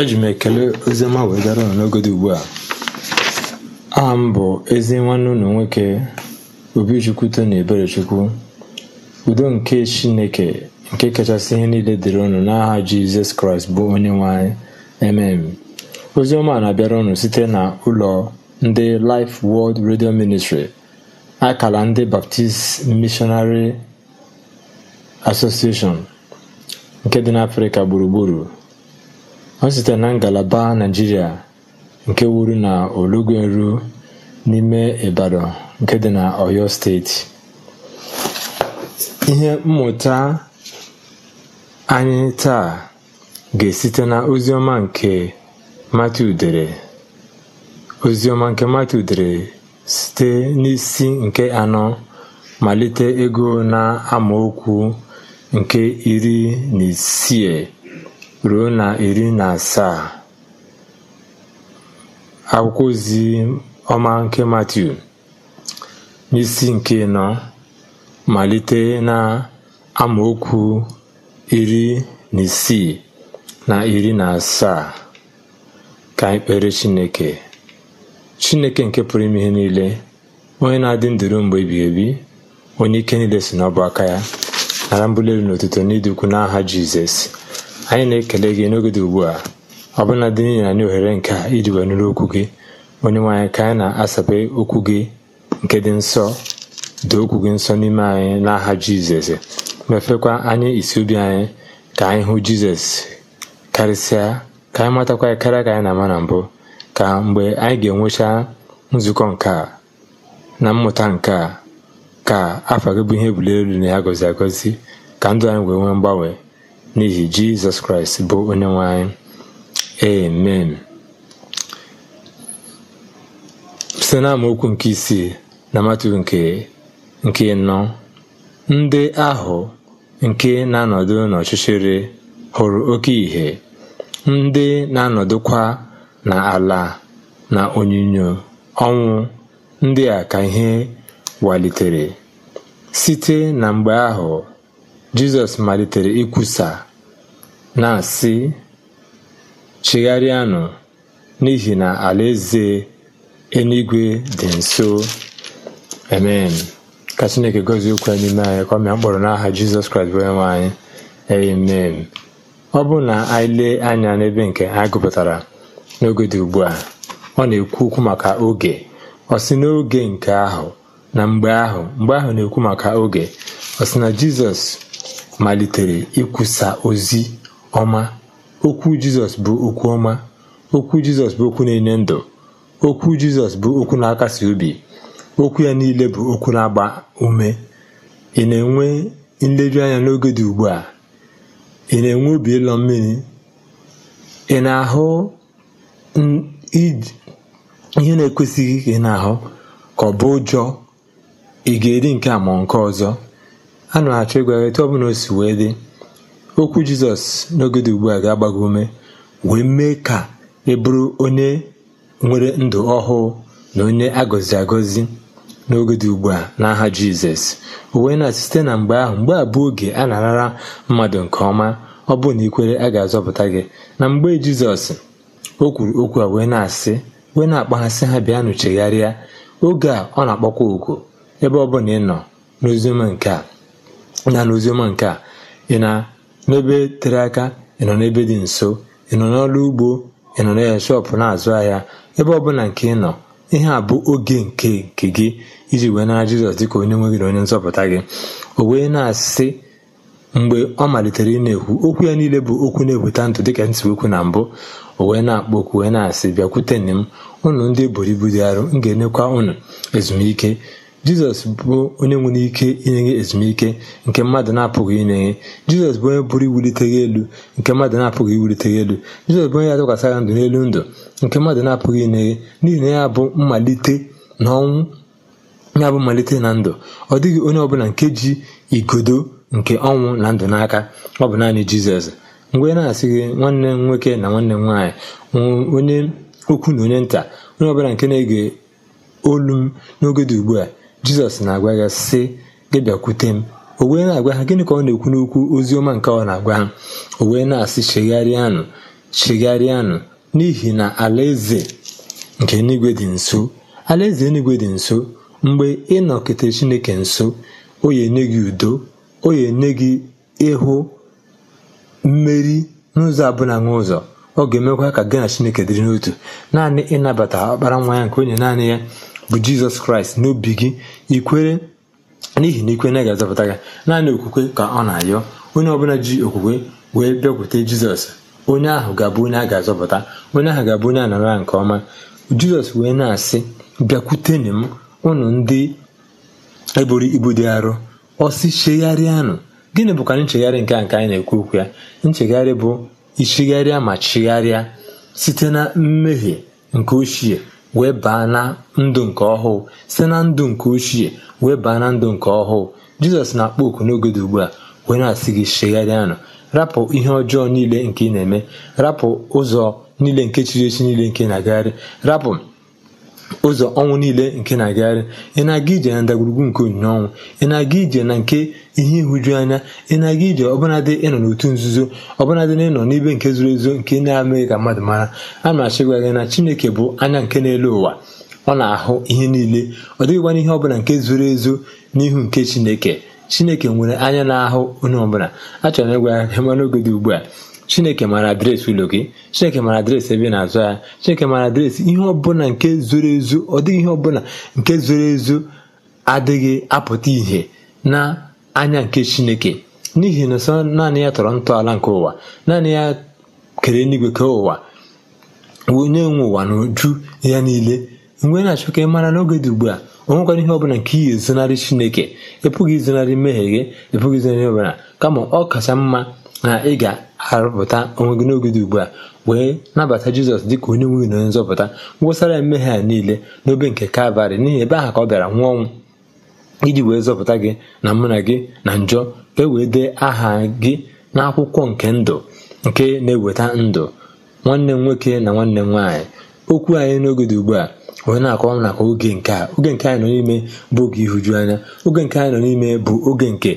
eji m ekele oziọma wee gara ụnụ n'oge ugbu a aha m bụ ezi nwanne ụlọ nwoke obichukwu na eberechukwu udo nke chineke nke kachasị ihe niile dịrị ụnụ n'aha jizọs kraịst bụ onye nwanyị emem ozioma na-abịara ụnụ site na ụlọ ndị Life World Radio Ministry akala ndị Baptist Missionary Association nke dị n'Africa gburugburu ọ site na ngalaba naijiria nke wuru na Ologunru n'ime Ibadan nke dị na Oyo steeti ihe mmụta anyị taa ga-esite na oziọma nke Matiu dere oziọma nke Matiu dere site n'isi nke anọ malite ego na amaokwu nke iri na isii ruo na iri na asaa akwụkwọ ozi ọma nke Matiu n'isi nke nọ malite na amaokwu iri na isii na iri na asaa ka ikpere Chineke Chineke nke pụrụ ime ihe niile onye na-adị ndụru mgbe ebighị ebi onye ike niile si n'ọbụ aka ya nara mbuli n'ụtụtụ n'otuto n'ịdị ukwu n'aha Jizọs Anyị na-ekele gị n'oge ugbu a, ọbụnadị n'ihi anyị ohere nke a iji wee nụrụ okwu gị onye nwe anyị ka anyị na asape okwu gị nke dị nsọ dị okwu gị nsọ n'ime anyị n'aha Jizọs mefekwa anyị isi obi anyị ka anyị hụ Jizọs karịsịa ka anyị matakwa ya karịa ka anyị na-ama na mbụ ka mgbe anyị ga-enwecha nzukọ nke a na mmụta nke a ka afọ gị bụ ihe ebuli elu na ya gọzi agọzi ka ndụ anyị wee nwee mgbanwe n'ihi jizọs kraịst bụ onye nwanyị amen site na nke isii na matu nke nke nọ ndị ahụ nke na-anọdụ n'ọchịchịrị hụrụ oke ìhè ndị na-anọdụkwa na ala na onyinyo ọnwụ ndị a ka ihe walitere site na mgbe ahụ Jizọs malitere ikwusa na-asị chigharịanụ n'ihi na alaeze eluigwe dị nso amen ka Chineke gozie okwu n'ime anyị ka ọ mkpọrọ n'aha Jizọs Kraịst bụ anyị amen ọ bụ na anyị lee anya n'ebe nke anyị gụpụtara n'oge dị ugbu a ọ na-ekwu okwu maka oge ọ sị n'oge nke ahụ na mgbe ahụ mgbe ahụ na-ekwu maka oge ọ sị na Jizọs malitere ikwusa ozi ọma okwu jizọs bụ okwu ọma okwu jizọs bụ okwu na-enye ndụ okwu jizọs bụ okwu na-akasi obi okwu ya niile bụ okwu na-agba ume ị na-enwe anya n'oge dị ugbu a ị na-enwe obi ịlọ mmiri ị na-ahụ ihe na-ekwesịghị ka ị na-ahụ ka ọ bụ ụjọ ị ga-eri nke a ma nke ọzọ a na achọ ịgwa etu ọbụla o si wee dị okwu jizọs n'oge dị ugbu a ga-agba ume wee mee ka ị e bụrụ onye nwere ndụ ọhụụ na onye agọzi agọzi n'oge dị ugbu a n'aha jizọs uwe na site na mgbe ahụ mgbe a bụ oge a na mmadụ nke ọma ọ bụ na ikwere a ga-azọpụta gị na mgbe jizọs o kwuru okwu a wee na-asị wee na-akpaghasị ha bịa nụchegharịa oge a ọ na-akpọkwa oku ebe ọ bụla ị nọ n'oziọma nke a na n'oziọma nke a ị na n'ebe tere aka ị nọ n'ebe dị nso ị nọ n'ọrụ ugbo ị nọ na shọpụ na-azụ ahịa ebe ọbụla nke ị nọ ihe a bụ oge nke nke gị iji wee nara jizọs dịka onye nwe gị na onye nzọpụta gị o wee na-asị mgbe ọ malitere ị na-ekwu okwu ya niile bụ okwu na ebute ndụ dịka ntiwokwu na mbụ o wee na-akpọ okwu wee na-asị bịakwute nne m ụnụ ndị buru ibu dị arụ m ga-enyekwa ụnụ ezumike jizọs bụ onye nwere ike inye gị ezumike nke mmadụ na-apụghị inye gị jizọs bụ onye bụrụ iwulite gị elu nke mmadụ na-apụghị iwulite gị elu jizọs bụ onye atụkwasị gị ndụ n'elu ndụ nke mmadụ na-apụghị inye gị n'ihi na ya bụ mmalite na ọnwụ ya bụ mmalite na ndụ ọ dịghị onye ọbụla nke ji igodo nke ọnwụ na ndụ n'aka ọ bụ naanị jizọs mgbe na-asị gị nwanne m nwoke na nwanne m nwaanyị onye okwu na onye nta onye ọbụla nke na-ege olu m n'oge dị ugbu a jizọs na-agwa ya sị gị bịakwute m o wee na-agwa ha gịnị ka ọ na-ekwu n'okwu ozi ọma nke ọ na-agwa ha o wee na-asị chegharịanụ chegharịanụ n'ihi na alaeze nke enigwe dị nso alaeze enigwe dị nso mgbe ị chineke nso o ya enye gị udo o ya enye gị ịhụ mmeri n'ụzọ na nwa ụzọ ọ ga-emekwa ka gị na chineke dịrị n'otu naanị ịnabata ọkpara nwa ya nke onye naanị ya bụ jizọs kraịst n'obi gị ikwere n'ihi na ikwe na ga-azọpụta gị naanị okwukwe ka ọ na-ayọ onye ọbụla ji okwukwe wee bịakwute jizọs onye ahụ ga-abụ onye a ga-azọpụta onye ahụ ga-abụ onye a nara nke ọma jizọs wee na-asị bịakwute m ụnụ ndị eburu ibu dị arọ ọsị chegharịanụ gịnị bụkwa nchegharị nke a nke anyị na-ekwu okwu ya nchegharị bụ ichigharịa ma chigharịa site na mmehie nke ochie wee baa na ndụ nke ọhụụ site na ndụ nke ochie wee baa na ndụ nke ọhụụ jizọs na-akpọ oku n'oge dị ugbu a wee na-asị gị nọ rapụ ihe ọjọọ niile nke ị na-eme rapụ ụzọ niile nke chiri echi niile nke na-agagharị rapụ ụzọ ọnwụ niile nke na-agagharị ị na-aga ije na ndagwurugwu nke onyinye ọnwụ ị na-aga ije na nke ihe ịhụju anya ị na-aga ije ọbụnadị ịnọ n'otu nzuzo ọbụnadị na ịnọ n'ibe nke zoro ezo nke na-amaghị ka mmadụ mara a na-achịgwa gị na Chineke bụ anya nke na ụwa ọ na-ahụ ihe niile ọ dịghịkwana ihe ọbụla nke zoro ezo n'ihu nke Chineke Chineke nwere anya na-ahụ onye ọbụla a chọrọ ịgwa ya n'oge dị ugbu a chineke mara adreesị ụlọ gị chineke mara adreesị ebe na-azụ ya chineke mara adreesị ihe ọbụla nke zoro ezu ọ dịghị ihe ọbụla nke zoro ezu adịghị apụta ìhè na anya nke chineke n'ihi na sọ naanị ya tọrọ ntọala nke ụwa naanị ya kere eluigwe ke ụwa onye nwe ụwa na uju ya niile mgbe na-achọ ka ị mara n'oge dị ugbu a o nwekwara ihe ọbụla nke iyi ezonarị chineke ịpụghị pụghị izonarị mmehie gị ịpụghị izonarị ọbụla kama ọ kacha mma na ị ga-arụpụta onwe gị n'oge dị ugbu a wee nabata jizọs dịka onye nwe na onye nzọpụta ngwụsara ya mmehie a niile n'obe nke kalvarị n'ihi ebe aha ka ọ bịara nwụọ ọnwụ iji wee zọpụta gị na mụ na gị na njọ ka e wee dee aha gị n'akwụkwọ nke ndụ nke na-eweta ndụ nwanne m nwoke na nwanne m nwaanyị okwu anyị n'oge dị ugbu a onye na-akọwa maka oge nke a oge nke anyị nọ n'ime bụ oge ihuju anya oge nke anyị nọ n'ime bụ oge nke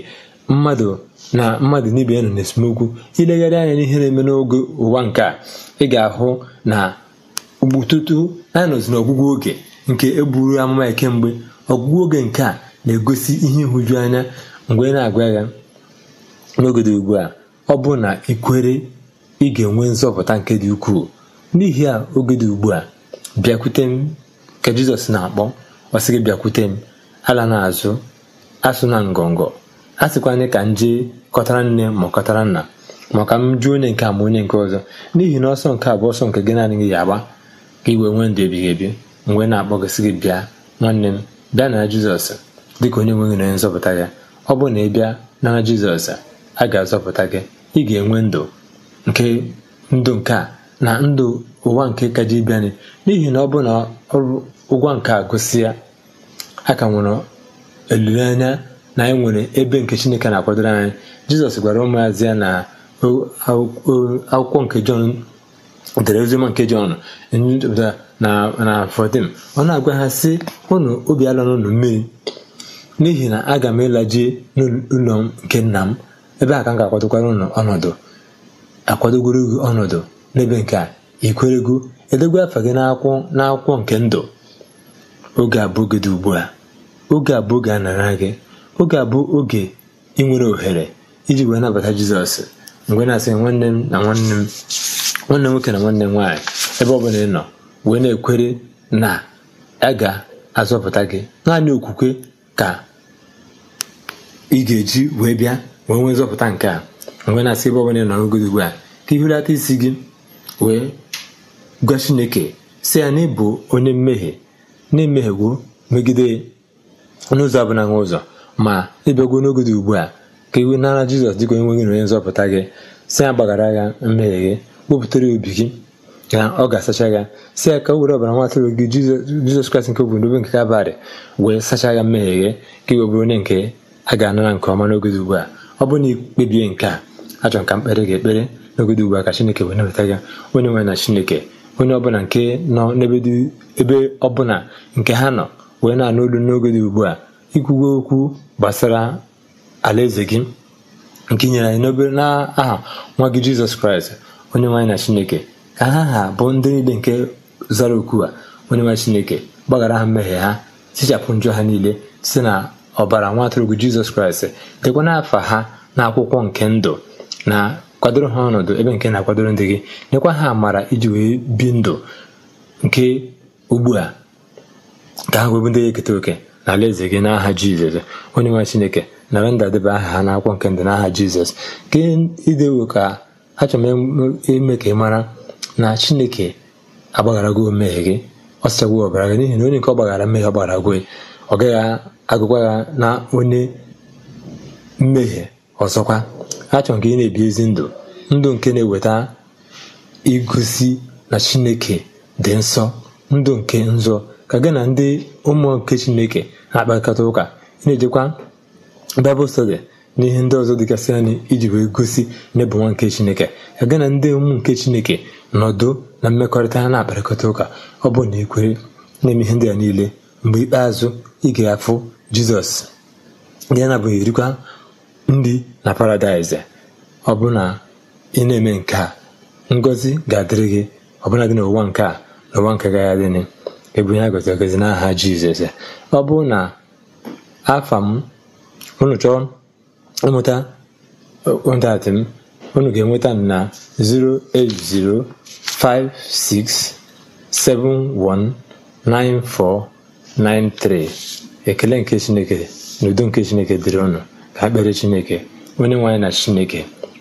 mmadụ na mmadụ na ibe ya nọ n'esemokwu ilegharị anya n'ihe na-eme n'oge ụwa nke a ị ga-ahụ na ugbututu anyị nọzi n'ọgwụgwụ oge nke egburu amụma ya kemgbe ọgwụgwụ oge nke a na-egosi ihe ịhụju anya mgbe na-agwa ya n'oge dị ugbu a ọ bụ na ikwere ị ga-enwe nzọpụta nke dị ukwuu n'ihi a oge dị ugbu a bịakwute m ka jizọs na-akpọ ọ gị bịakwute m ala n'azụ asụ na ngọngọ a anyị ka m jee kọtara nne ma kọtara nna maka m jụọ onye nke a ma onye nke ọzọ n'ihi na ọsọ nke a bụ ọsọ nke gị naanị gị ga-agba ka iwe nwee ndụ ebighị ebi mgbe na-akpọgosị gị bịa nwanne m bịa na jizọs ka onye nweghị na onye nzọpụta gị ọ bụ na ị bịa na jizọs a ga-azọpụta gị ị ga-enwe ndụ nke ndụ nke a na ndụ ụwa nke kaji bịanị n'ihi na ọ bụ na ọrụ ụgwọ nke a gụsị ya a ka nwere olileanya na anyị e nwere ebe nke chineke na-akwadoro anyị jizọs gwara ụmụazị ya na akwụkwọ nke jọn dere oziọma nke jọn na 14 ọ na-agwa ha sị obi ala n'ụlọ mmiri n'ihi na aga m ịlaji n'ụlọ nke nna m ebe a ka m ga-akwadokwara ụnụ ọnọdụ akwadogoro gị ọnọdụ n'ebe nke a ikwerego edegwa afa gị n'akwụkwọ nke ndụ oge abụọ gị dị ugbu a oge abụọ gị anara gị oge a bụ oge ị nwere ohere iji wee nabata jizọs mgbe na-asị nwanne m na nwanne m nwanne nwoke na nwanne nwaanyị ebe ọ bụla ị nọ wee na-ekwere na a ga-azọpụta gị naanị okwukwe ka ị ga-eji wee bịa wee nwee nzọpụta nke a mgbe na-asị ebe ọ bụla ị nọ n'ogodo ugbu a ka ị isi gị wee gwa chineke si ya na ịbụ onye mmehie na-emehiewo megide n'ụzọ abụla nwa ụzọ ma ịbịagwo n'oge dị ugbu a ka iwe nara jizọs dịka onye nwe na onye nzọpụta gị si ya gbaghara ya mmehie gị wepụtara obi gị ka ọ ga-asacha ya si ya ka o were ọbara nwa atụrụ gị jizọs kraịst nke obodo ebe nke kabarị wee sacha ya mmehie gị ka iwe bụrụ onye nke a ga-anara nke ọma n'oge dị ugbu a ọ bụrụ na ikpebie nke a achọrọ ka mkpere gị ekpere n'oge dị ugbu a ka chineke wee nabata gị onye nwe na chineke onye ọbụla nke nọ n'ebe ọbụla nke ha nọ wee na-anụ olu n'oge dị ugbu a ikwuwe okwu gbasara alaeze gị nke nyere anyị n'obere n'aha nwa gị jizọs kraịst onye nwaanyị na chineke ka ha ha bụ ndị niile nke zara okwu a onye nwaanyị chineke gbaghara ha mmehie ha tichapụ njọ ha niile site na ọbara nwa atụrụ jizọs kraịst dekwana afa ha na akwụkwọ nke ndụ na kwadoro ha ọnọdụ ebe nke na-akwadoro ndị gị nyekwa ha amara iji wee bi ndụ nke ugbu a ka ha wee bụ ndị eketa oke n'ala eze gị n'aha jizọs onye nwe chineke nara ndadebe aha ha n'akwụkwọ nke ndị n'aha jizọs ke idewo ka achọrọ m ime ka ị mara na chineke gị omehie gị ọ sịchagwo ọbara gị n'ihi na onye nke ọ gbaghara mmehie ọ gị ọ gaghị agụkwa ya na onye mmehie ọzọkwa achọrọ ka ị na-ebi ezi ndụ ndụ nke na-eweta igosi na chineke dị nsọ ndụ nke nzọ ka gị na ndị ụmụ nke chineke na-akpakọta ụka na-ejekwa bịbụl stọdi na ihe ndị ọzọ dịgasị anyị iji wee gosi n'ebu nwa nke chineke ka gị na ndị ụmụ nke chineke nọdụ na mmekọrịta ha na-akparịkọta ụka ọ bụ na ekwere na-eme ihe ndị a niile mgbe ikpeazụ ị afụ jizọs ya na erikwa ndị na paradaịs ọ bụ na ị na-eme nke a ngọzi ga-adịrị gị ọbụla dị n'ụwa nke a n'ụwa nke gị adịnị ebu ya gọzi n'aha Jizọs ọ bụrụ na afa m unu chọọ ịmụta kọntaktị m unu ga-enweta m na 08056719493 ekele nke Chineke na udo nke Chineke dịrị ọnụ ka a kpere Chineke onye nwe anyị na Chineke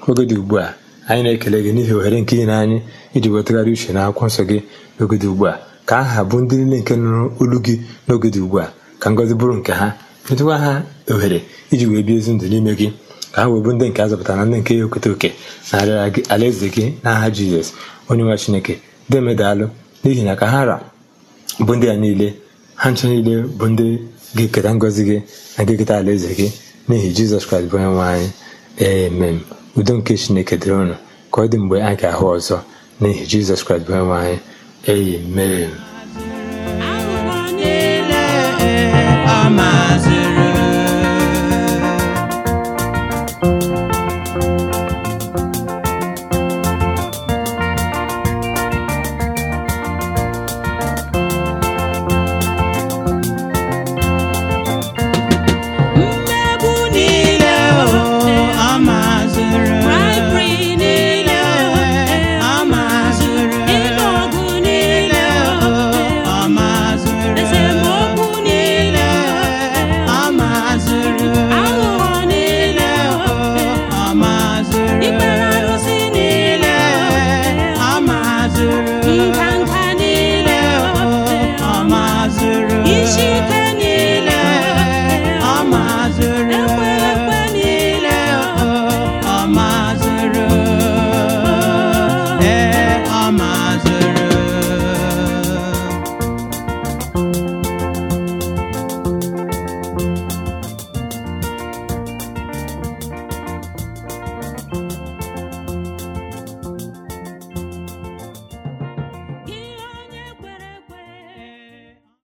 oge dị ugbu a anyị na-ekele gị n'ihi ohere nke ị na anyị iji wetagharị uche na akwụkwọ nsọ gị oge dị ugbu a ka aha bụ ndị niile nke nụrụ olu gị n'oge dị ugbu a ka ngọzi bụrụ nke ha metụkwa ha ohere iji wee bie ezi ndụ n'ime gị ka ha wee bụ ndị nke a zọpụtara na ndị nke ya oketa oke na alaeze gị n'aha jizọs onye nwa chineke demedalụ n'ihi na ka ha ra bụ ndị a niile ha ncha niile bụ ndị gị keta ngọzi gị na ga-eketa alaeze gị n'ihi jizọs kraịst bụ onye anyị emem udo nke chineke dịrị ụnụ ka ọ dị mgbe anyị ga-ahụ ọzọ n'ihi jizọs kraịst bụ onye nwe anyị Amen.